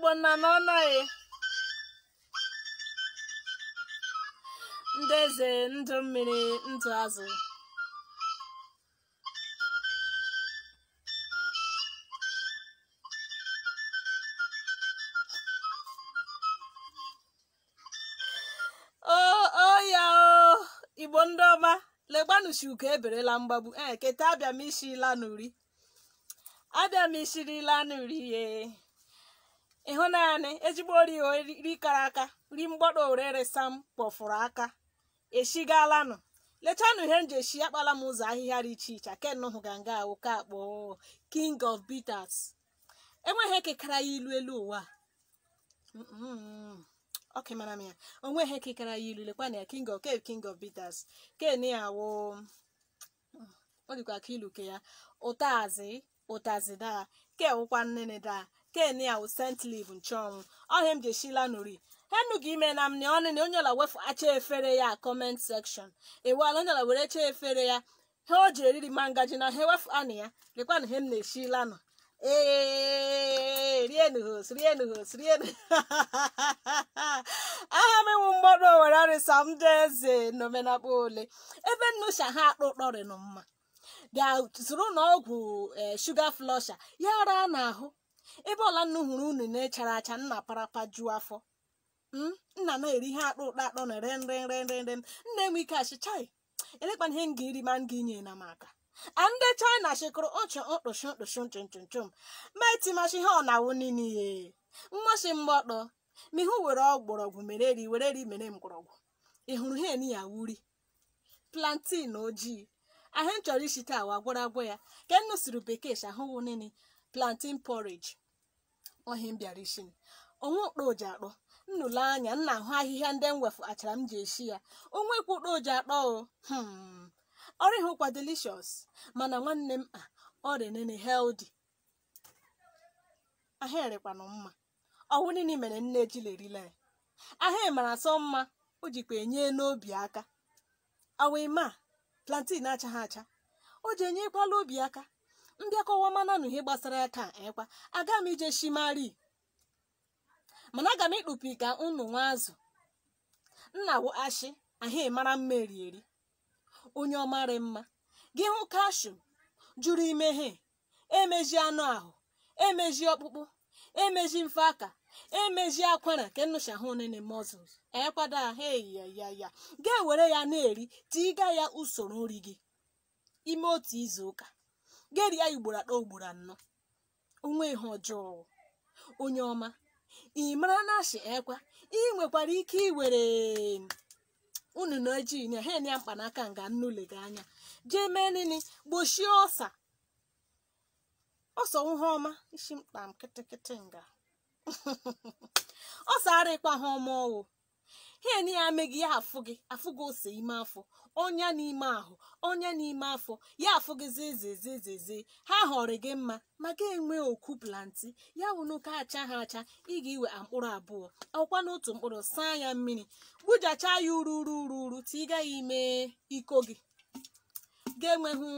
igbo nna n'ọnọghị ndị eze ndụ mmiri ndụ azụ igbo ndị ọma legbanuchi ugo eberela mgbagbu ee eh, keta abịa m ishila n'uri abịam m ishirila n'uri ye ịhụ naanị ezigbo ori kara aka ri mgbọrọ orere sam kpọfụrụ aka eshigalanụ lechanụ ihe nji eshi akpala m ụzọ ahịhịa dị iche iche akenụ hụga nga woke akpọ king of bitters enweghị ekekara ya ilu elu ụwa oke mara m ya onweghị ekekara ya ilu lekwana ya king of king of bitters ken ya wo mm, ọ dịkwa ka ilu ya ụtazị ụtazị daa ke wụkwa nnene daa ken awụ wụ sent liv nchọnwụ ọhịa m ji eshila nụri henu gị ime na m na ọnịna onye ọla wefu acha efere ya kọment sekshọn ewala onye ọla were cha efere ya ha o ji eriri ma ngaji na ha wefu anụ ya lekwa na he m na-eshila nọ ee rienu hos rienu hos rienu aha m enwu mgbọrọ owere arịsa m dị eze n'omenakpa ole ebe nnucha ha akpa ụkpọrịnụ mma ga-zụrụ na ọgwụ e, shuga flọsha ya ara n'ahụ ebe ọla nnu hụrụ unu na-echara acha nna parapa juo afọ hmm? nna na-eri ihe akpụ ụkpa akpọ na re nre nre nre nre nna enwe ike achịchai elekpana ihe m ga eri ma m ga-inye na m aka a ndị china chịkụrụ ụchụ mkpụchụ mkpụchụ nchụnchụnchụm ma etimachi ihe ọ na-awụ niile ihe mmasị mgbọtọ ma ihu were ọgbọrọgwụ mere ri were eri mere mgbọrọgwụ ị hụrụ ihe ya wuri plantin ojii ahụ m chọrọ ishi taa wa gwọrọ ya ka nnu siri bekee shi ahụwụ nini plantain porridge ohi m bịara ishi onwe okpo oji akpọ nnụle anya nna ahụ ahịhịa ndị m wefu achara m ji eshi ya onwe kwu okpo oji akpọ o hmm. ọrụ ịhụkwa delicious mana nwanne m a ah, ọ dị nene healthy ahịrịkwanụ mma ọwụ nini mere nne ji lerila ya ahịa mara asọ mma o jikwa enye n'obi aka awa ime a plantain achaghị acha o ji enyekwala obi aka ndị akọwa mana na ihe gbasara aka ka ekwa aga m ije shimari mana aga m ịkpụpi ka unu nwa azụ nna wụ ashị ahịa mara mma onye ọmarị mma gị hụ kashum jụrụ imeghe emeji anụ ahụ emeji ọkpụkpụ emeji mfe aka emezi akwara ka nnụcha hụ nene muscles e ekwado ahụ ya ga-ewere ya na-eri tiga ya usoro nri gị ime otu izu ụka geri ya ugboro atọ ugboro anọ onwe ihe ọjọọ onye ọma ị mara na ashị ekwa ị nwekwara ike iwere mm, unu na ojii na ha ya mkpanaka nga nnule gị anya jee mee nini gbochie ọsa ọsọ ihe ọma isi mkpa m nga ọ sara ịkpa ha ọmaọwụ ihe na ya ame ya afụ gị afụ gị ose ime afọ ọnya n'ime ahụ onye n'ime afọ ya afụ gị zezezezeze ha họrọ gị mma ma ga enwe oku planti ya wụnụka acha ha acha ị ga-iwe mkpụrụ abụọ ọkwa n'otu mkpụrụ saa ya mmiri gbujacha ya uru uru uru uru tiga ya ime iko gị ga-enweghị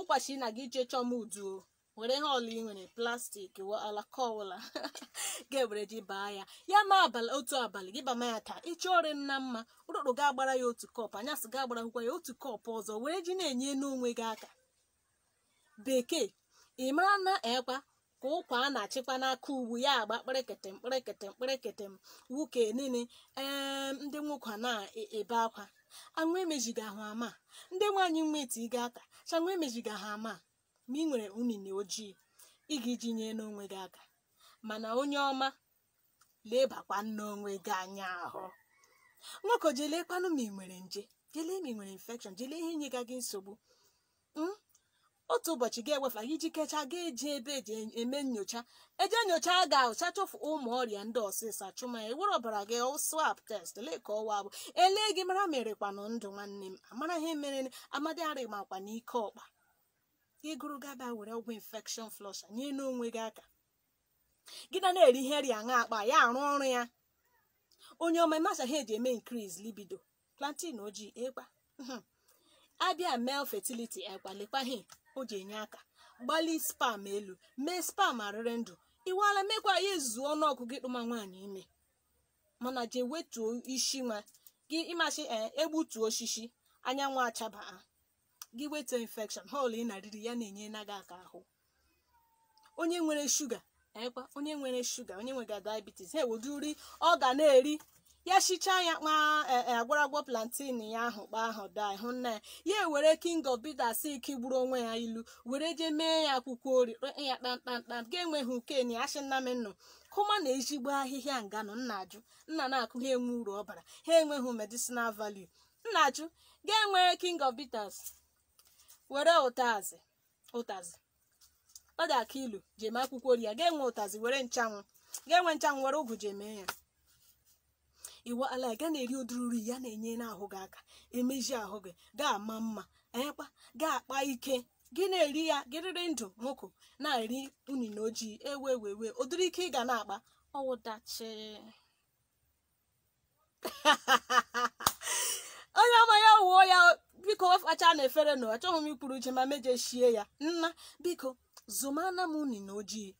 ụbọchị na gị jee chọọ m uduo were ihe ọla ị nwere plastik alaka ọbụla ga-ewere ji baa ya ya ma abalị otu abalị gị bama ya ka ịchọ ọrị nna mma ụrụrụ ga-agbara ya otu kọp anyasị ga-agbarakwụkwa ya otu kọpụ ọzọ were ji na-enye n'onwe gị aka bekee ị mara na ekwa ka ụkwa a na-achịkwa n'aka ugwu ya agba kpịrịkịtị mkpịrịkịtị mkpịrịkịtị m nwoke niile ee ndị nwoke na-ebe akwa anwụ emejiga ahụ ama ndị nwaanyị mma ga aka chanwụ emejiga ha ama ma ị nwere unine ojii ị ga iji nye n'onwe gị aka mana onye ọma lebakwa n'onwe gị anya ahụ nwoke jelekwanụ ma ị nwere nje jelee ma ị nwere infekshọn jelee ihe inye gị nsogbu hmm? otu ụbọchị ga-ewefa gị iji kechaa ga eji ebe eji eme nyocha eje nyocha ga-ahụcha ụmụ ọrịa ndị ọsịsa chụma ewere ọbara gị swap test lee ka ọwa bụ elee gị mara merekwanụ ndụ nwanne m amara ihe mere amadịarị makwa n'ike ọkpa ịgụrụ gaba were ọgwụ infekshọn flọsha nye n'onwe gị aka gị na na-eri ihe rịa aṅa akpa ya arụ ọrụ ya onye ọma masa ha eji eme increase libido plantin ojii ịkpa hmm. abịa mel fertility agbalịkwa o ji enye aka gbalị spam elu mee spam arịrị ndụ iwala mekwa ya ezuzu ọnụọgụ gị kpụma nwaanyị ime mana jee wetuo isi nwa gị ịmasị eh, egbutuo osisi anyanwụ achabaa gị weta ha họl ị na-arịrị ya na-enye gị aka ahụ onye nwere shuga onye nwere shuga onye nwega diabetes ha ewedu ọ ga na-eri ya shichaa ya kpa e, e, agwaragwọ plantain ya ahụ kpa ahụ daa hụ nna ya ya were king of bitters ike gburu onwe ya ilu were jee mee ya akwụkwọ ori ya kpamkpamkpam ga-enweghị ukeni asị nna m nnụ kụma na ezigbo ahịhịa nganụ nna ajụ nna na-akụ ha enwe uru ọbara ha enweghị medicinal value nna ajụ ga-enwere king of bitters were ụtazi ụtazi ọ dị aka ilu ji akwụkwọ ori ya ga-enwe ụtazi were nchanwụ ga-enwe nchanwụ were ụgụ ji ya iwe ala ga na-eri ụdịrị uri ya na-enye n'ahụ gị aka emeji ahụ gị ga-ama mma ekpa ga-akpa ike gị na-eri ya gị riri ndụ nwụkụ na-eri unine ojii ewe wewe ụdịrị ike ị ga na-akpa ọwụdachi onye ọma ya wuo ya biko wefacha na efere na achọghị m ikwuru uche ma meje shie ya nna biko zụmana m na ojii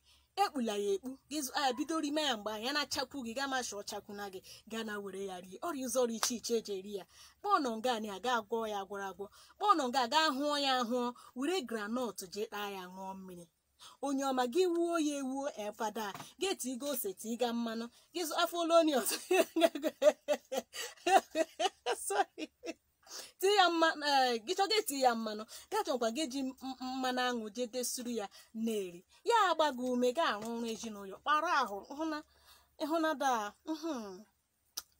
ekpula ya ekpu gị bido rime ya mgbe anya na-achakwu gị gaa masha ọchakwu na gị gaa na were ya rie ọrịa ụzọrọ iche iche eji eri ya kpọọ nga anyị aga agwọ ya agwọrọ agwọ kpọọ nga aga hụọ ya ahụọ were granọt jee taa ya ṅụọ mmiri onye ọma gị wuo ya ewuo efada gị ose ose tiga mmanụ gị afọ olonius tie ya mma eh, gị chọga eti ya mmanụ ga chọkwa gị ji mmanụ aṅụ je desuru ya na-eri ya agba gị ume ga arụ ọrụ ezinụlọ kpara ahụ ịhụnada hmm,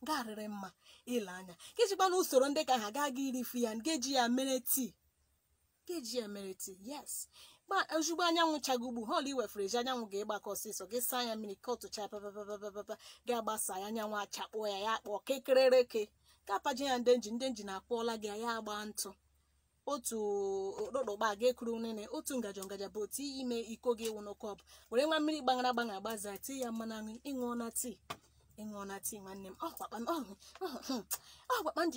garịrị mma ile anya gị chịkwa na usoro ndị ka ha gaa gị irifu ya ngeji ya mere tii ngeji ya mere tii yes ozugbo anyanwụ chago ugbu họl iwefere ji anyanwụ ga-ịgbakọ ọsịsọ gị saa ya mmiri ka ọtụcha papapapapapa ga-agbasa ya anyanwụ achakpụọ ya ya kpọọ kekerereke kapaji ya ndenji ndenji na-akpọọla gị ya agba ntụ otu okpokpa ga ekuru nene otu ngaji ngaji bụ otu ime iko gị wụ bụ were nwa mmiri gbagara gbana agbaza tii ya mmanụ aṅụ ịṅụọ na tii ịṅụọ na tii nwanne m